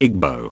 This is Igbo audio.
Igbo